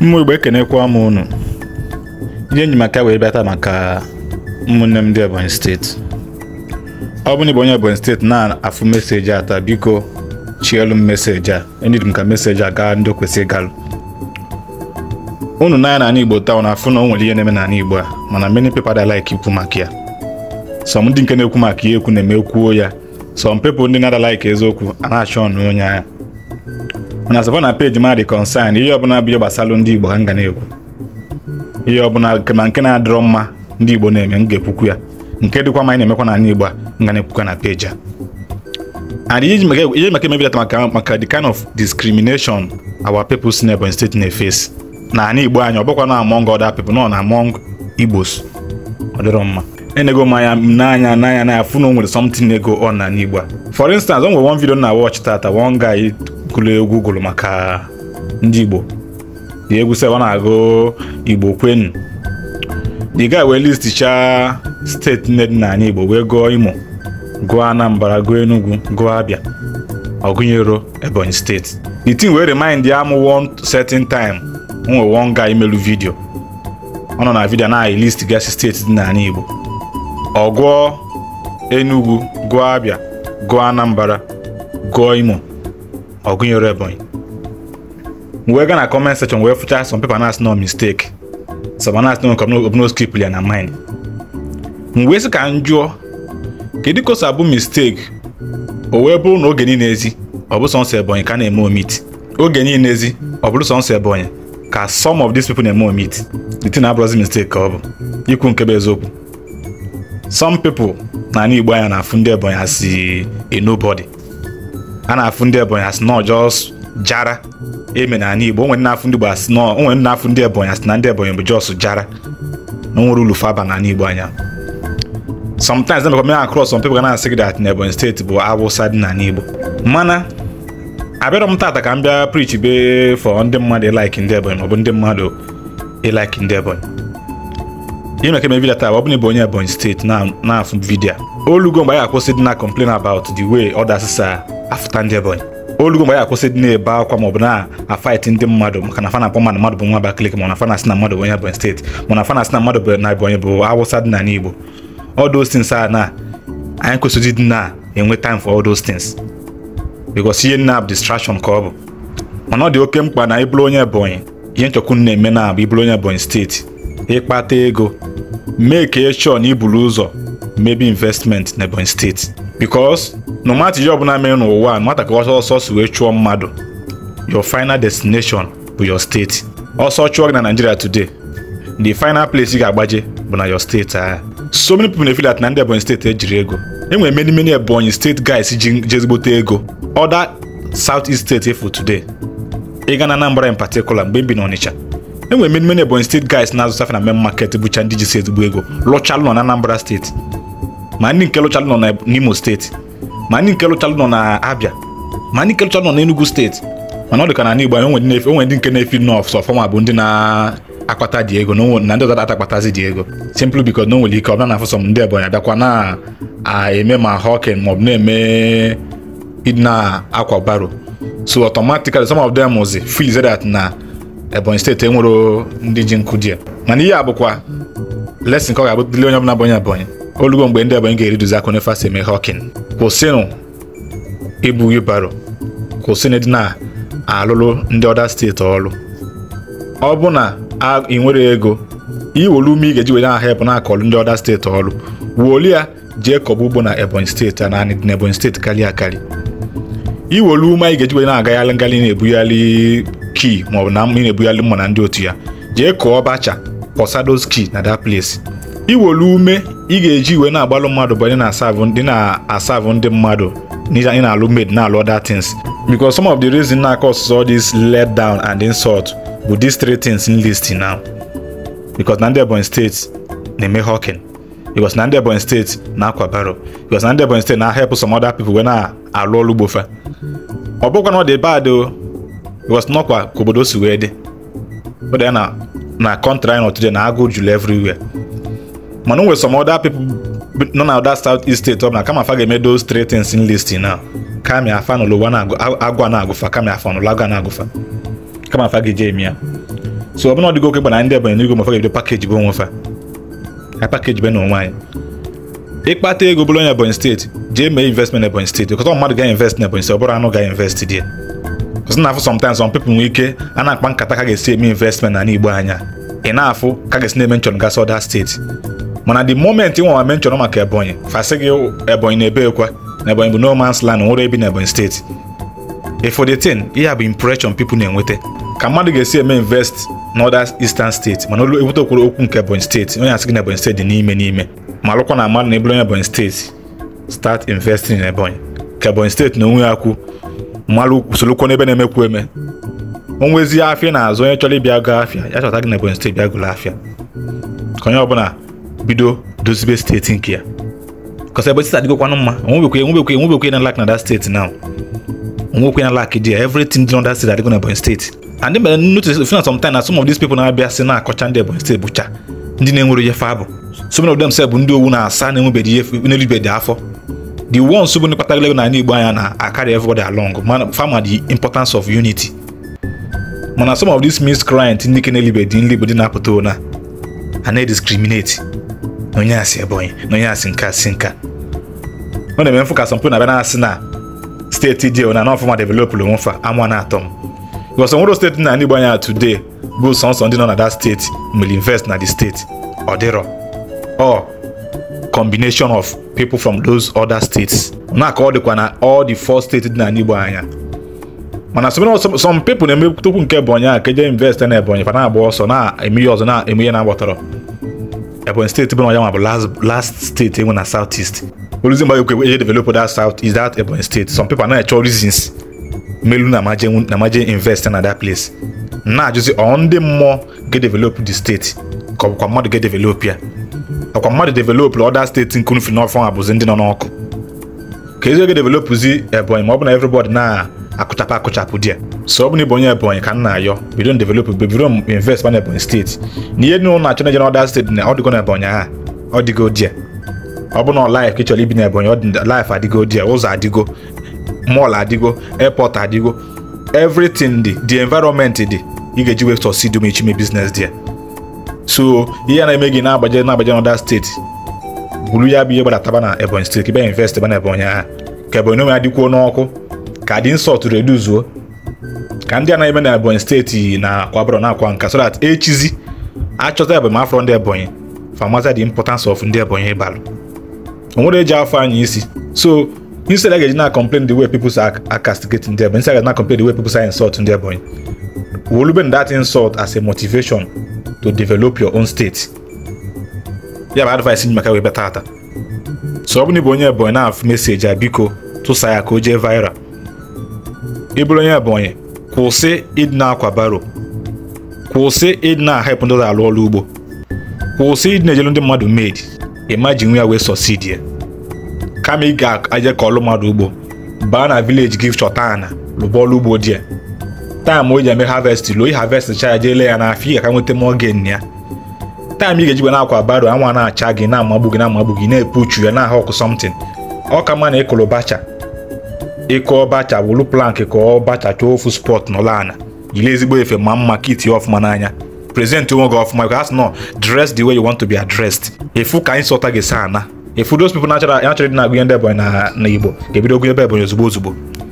mmụ igbo ekenekwa m unu ihe enyi maka wee bịata maka ụmụnne m ndị ebonyi steeti ọ bụ na ịbụ onye ebonyi steeti na-afụ meseji ata taa biko chielu m meseji a enyi m ka meseji a gaa ndị kwesịrị galụ unu n'anya n'ala igbo taa na afụ na o nwere ihe na-eme n'ala igbo a mana many people da like ikwu maka ya some ndị nke na-ekwu maka ihe ekwu na-eme ekwuo ya sọm pepụ ndị na-ada like eziokwu a na-achọ ọnụ onye anya mana sọba na peji ma dị kọnsan ihe ọbụla bụ ihe gbasara ndị igbo ka m na-ekwu ihe ọbụla ma nke na-adịrọ mma ndị igbo na-eme m ga-ekwukwu ya nke dịkwa ma anyị na-emekwa n'ala igbo a m na-ekwukwa na peji a and ihe maka emebidata maka maka the kind of discrimination our people si n'Ebonyi steeti na-efesi na anyị igbo anyị ọ bụkwa na among other people nọ na among igbos ọ mma enego mmanya n'anya n'anya n'anya afụ na o nwere something ego ọ na n'igbo a for instance o nwere one video na watch tata one guy na-ekulu egwu gụrụ maka ndị Igbo dị egwu sị na-agụ Igbo kwenu the guy wee listicha steeti nne dị n'anya Igbo wee gụọ Imo gụọ Anambra gụọ Enugu gụọ abịa ọgụnyero Ebonyi steeti the thing wee remind ya m one certain time nwe one guy imelu vidio ọ nọ na vidio na list gasị steeti dị n'anya Igbo ọ gụọ Enugu gụọ abịa gụọ Anambra gụọ Imo Ogunyoro Ebonyi wee gaa na comment section wee fụcha some people na-asị no mistake some na-asị no obuno skip ya na mind m wee sị ka m jụọ kedu ka o si abụ mistake o wee bụrụ na oge niile ezi ọ bụ sọnsọ Ebonyi ka na-eme omit oge niile ezi ọ bụrụ sọnsọ Ebonyi ka some of these people na-eme omit the thing abụrụzi mistake ka ọ bụ ikwu nke bụ eziokwu some people na ala Igbo anya na-afụ ndị Ebonyi asị eh, nobody a na-afụ ndị Ebonyi asị e na ọjọọ jara eme na Igbo onwere na-afụ ndị Igbo asị na onwere ndị Ebonyi asị na ndị Ebonyi bụ jọs jara na nwere ulu faba na Igbo anya sometimes na mekwa mere across some people ga na-asị gị dat na Ebonyi steeti bụ Awụsa dị na ala Igbo mana abịarọ m tata ka m bịa preach be for ndị mmadụ ịlaiki ndị Ebonyi maọbụ ndị mmadụ ịlaiki e ndị Ebonyi ime ka eme vidio taa ọ bụ na ịbụ onye Ebonyi steeti na-afụ vidiyo olugo mgbe anyị akwụsị dị na complain about the way others are afụta ndị ebonyi olugo mgbe ya akwụsị dị na-ebe akwa maọbụ na-afaịtị ndị mmadụ maka na fana akpọ mmadụ mmadụ bụ nwa Abakaliki mana fana si na mmadụ bụ onye Ebonyi steeti mana fana si na mmadụ bụ na Ebonyi bụ Awụsa dị na n'Igbo all those things a na anyị kwesịrị dị na-enwe time for all those things because ihe nna bụ distraction ka ọ bụ mana ọ dị oke mkpa na ịbụrụ onye Ebonyi ihe nchọkwu na-eme na bụ ịbụrụ onye Ebonyi steeti ịkpata ego mee ka chọọ na iburu ụzọ mebi investment na Ebonyi steeti because na ọmata ihe ọbụla mere n'ụwa nwata ka ọsọ ọsọ si wee chụọ mmadụ your final destination bụ your steeti ọsọ chụọ gị na Nigeria today the final place ị ga-agbaje bụ na your steeti ahụ so many people na feel that na ndị Ebonyi steeti ejiri ego enwere many many Ebonyi steeti guys ji jezigbote ego other south east steeti efu today ịga na Anambra in particular mgbe m bi na Onitsha enwere many many Ebonyi steeti guys na-azụtafe na main market bụcha ndị ji si ezigbo ego lụchalụ nọ na Anambra steeti ma ndị nke lụchalụ nọ n'Imo steeti ma ndị nke lụchalụ nọ na Abia ma ndị nke lụchalụ nọ na steeti mana ọ ka na Igbo anyị onwe ndị nke na-efi nọf sọ fọma bụ ndị na-akpata dị ego na ndị ọzọ akpatazi dị ego simpl because na o nwere ike ọbụla na-afụ sọ m ndị Ebonyi adakwa na-eme ma hawking maọbụ na-eme na-akwa baro so automatically some of them was feel that na Ebonyi steeti enwero ndị ji nkụ dị ya mana ihe a bụkwa lesin ka ọ ga-abụ dịle onye ọbụla bụ onye Ebonyi olugo mgbe ndị Ebonyi ga-eriduzi aka n'efe asị eme hawking kwụsịnụ ibu wibaro kwụsịnụ dị na-alụlụ ndị ọda steeti ọrụ ọ bụ na ị nwere ego iwolu ume ị ga-eji were aha ebe na-akọlụ ndị ọda steeti ọrụ wuoli ya jee kọba ugbo na Ebonyi steeti a naanị dị na Ebonyi steeti karịa akarị iwolu ume anyị ga-eji were na-agaghalị ngalị na-ebughalị kii maọbụ na ị na-ebughalị mma na ndị otu ya jee kọọ ọbacha posados kii na that place iwolu ume ị ga-eji iwe na-agbalụ mmadụ bụ ndị na-asavụ ndị mmadụ ị na-alụ made na-alụ other things because some of the reason na cause all this let down and insult bụ these three things in list now because na ndị Ebonyi steeti na-eme hawking because na ndị Ebonyi steeti na-akwa baro because na ndị Ebonyi steeti na-help some other people wee na-alụ ọlụ gbofa ọ bụkwa na ọ dị bad o because nọkwa ka obodo si wee dị ọ dị na na kọntra anyị nọtụde na agụ juru everywhere mana o nwere some other people nọ na other south east state ọ bụla kama ga-eme those three things in listing now afa n'ụlọ agwa na-agụfa kama afa n'ụlọ agwa na-agụfa kama afa ga-eje eme ya so ọbụna ọdịgo oke gbana ndị ebanye n'igwe mafa ga-ebido pakeji bụ onwe ha pakeji be na anyị ịkpata ego bụrụ onye ebonyi steeti jee mee investment na ebonyi steeti ọkọtọ mmadụ ga-invest na ebonyi steeti ọ bụrụ anụ ga-invest dị ọsị na afụ sometimes people nwee ike a na-akpa nkata ka ga-esi eme investment na n'igbo anya ị na-afụ ka ga-esi na-eme nchọn gasị ọda steeti mana the moment nwa ma nchọrọ maka ebonyi fasị gị ebonyi na-ebe ekwa na ebonyi bụ no land nwere ebi na ebonyi steeti ịfụ ihe bụ impression pipu na-enweta ka mmadụ ga-esi eme invest n'ọda eastern steeti mana olu ebute okwuru okwu nke ebonyi steeti onye asị gị na ebonyi steeti dị n'ime n'ime ma alụkwa na mmadụ na eburu onye ebonyi steeti start investing in ebonyi ka ebonyi steeti na onwe ya kwu mmadụ usorokwo n'ebe na-emekwu eme onwezi afịa na-azụ onye chọrọ ịbịa go afịa ya chọta gị na ebonyi steeti bịa gụrụ afịa ka onye ọbụla bido dozibe steeti nke ya kọsa ebe steeti adịgokwanụ mma onwebekwe enwebekwe enwebekwe na lak na that steeti now onwekwe na lak dị ya everything dị na that state adịgo na Ebonyi steeti and mere notice fina sometime na some of these people na-abịa si na-akọcha ndị Ebonyi steeti bụcha ndị na-enwere ihe fa bụ so many of them sef bụ ndị owu na-asa na-enwebeghị ihe n'elubedị afọ the ones bụ ndị kpatara na ala Igbo anya na-akarị everybody along mana fama the importance of unity mana some of these miscreants ndị ke na-elibe dị nli bụ dị na-apụta ona a na-discriminate na onye asị Ebonyi na onye asị nke asị nka ọ na-eme mfụkasị mpụ na-abịa asị na steeti dị na n'ọfụma developụrụ fa ama na-atọ m gọsọ nwere steeti na ndị Igbo anya today bụ sọnsọ ndị nọ na that steeti will invest na the steeti ọ dịrọ ọ combination of people from those other states na-aka ọ dịkwa na all the four steeti dị na n'Igbo anya mana some people na-eme tukwu nke Ebonyi a ka eje invest na Ebonyi fa na-agba ọsọ na emeghe ọzọ na emeghe na agbọtọrọ ebonyi state bụ na ọya last last state enwe na south east oluzi mba ekwe eje develop that south is that ebonyi state some people are chọ reasons melu na amaje na amaje invest in that place na-ajụzi ọ ndị mmụọ ga develop the state ka ọbụkwa mmadụ ga develop ya ọkwa mmadụ develop other state nkunu fi n'ọfọ abụzi ndị nọ n'ọkụ ka ezi ga developụzi ebonyi ma ọ bụ na everybody na akụchapụ akụchapụ di ya so ọ bụ onye Ebonyi ka m na-ayọ bido n develop mgbe bido m invest mana Ebonyi steeti na ihe nụrụ na-achọ na-eje steeti na ọ na Ebonyi aha ọ dịgo ọ bụ na laịf ka ị chọrọ ibi na Ebonyi laịf adịgo di ụzọ adịgo mọl adịgo airport adịgo everything dị the environment dị ị ga-eji wee sọsid ma ichime biznes dị ya so ihe na-eme gị na-agbaje na-agbaje n'ọda steeti buru ya bụ ihe gbadataba na Ebonyi steeti ka ịbịa invest ba na Ebonyi aha ka Ebonyi onwe ya dịkwuo n'ọkụ ka dị nsọtụ reduzuo ka ndị anaghị eme na ebonyi steeti na akwabro na akwa nka so that echizi achọta ebonyi afọ ndị ebonyi famaza the importance of ndị ebonyi ịbalụ onwere eji afọ anyị isi so instead I get na complain the way people are, are castigating them, instead I get na complain the way people are insult ndị ebonyi We'll even that insult as a motivation to develop your own state. Yeah, but advice in Makawe Batata. So, ọ bụ I'm going to go message Abiko ka o jee Vira. bụrụ onye Ebonyi kwụsị ịdị na-akwa baro kwụsị ịdị na-ahepụ ndị ụlọ alụ ọrụ ugbo kwụsị ịdị na-ejelu ndị mmadụ meedi ịma ji nwe ya wee sọsidi ya kama ị ga-aje ka ọlụ mmadụ ugbo baa na vileji gị chọta ana lụba ọlụ ugbo dị ya taam o ji eme havest lụọ ihavest cha ya jee ya n'afọ ị ga-aka nweta mọgen ya taam ị ga-ejigba na-akwa baro anwa na-acha gị na-amagbu gị na-amagbu gị na uchu ya na-ahụ ọkụ sọmtin ọ ka mma na ịkụrụ bacha ịkụ ọbacha wulu plank ka ọ chọọ ofu spọt nọ ana yiri ezigbo efe ma mma ka itinye ọfụma n'anya prezent onwe gị ọfụma ka asị nọ dress the way you want to be addressed efu ka anyị sọta gị saa ana efu those people natural natural dị na-agụnye ndị ebonyi na igbo ga-ebido gụnye ebe ebonyi ozugbo ozugbo